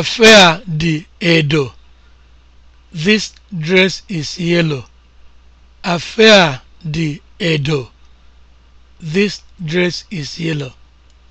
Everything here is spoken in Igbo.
Afe di edo. This dress is yellow. Afe di edo. This dress is yellow.